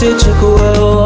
took a whirl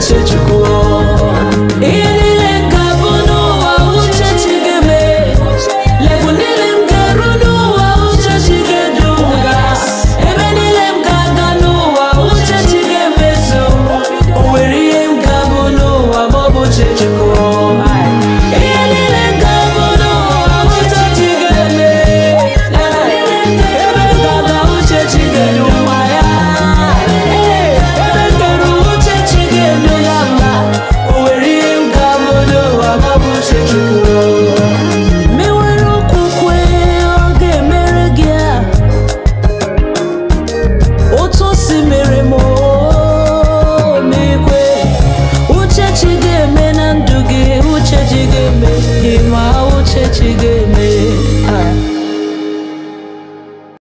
谁之过？